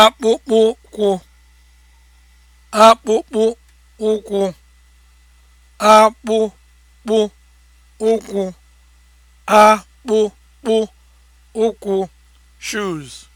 akpụkpụ ụkwụ akpụkpụ ụkwụ akpụkpụ ụkwụ akpụkpụ ụkwụ shoes